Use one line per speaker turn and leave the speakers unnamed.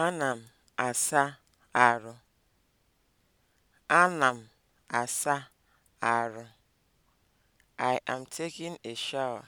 Ana m asa arụ. Ana m asa arụ. I am taking a shower.